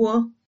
wo?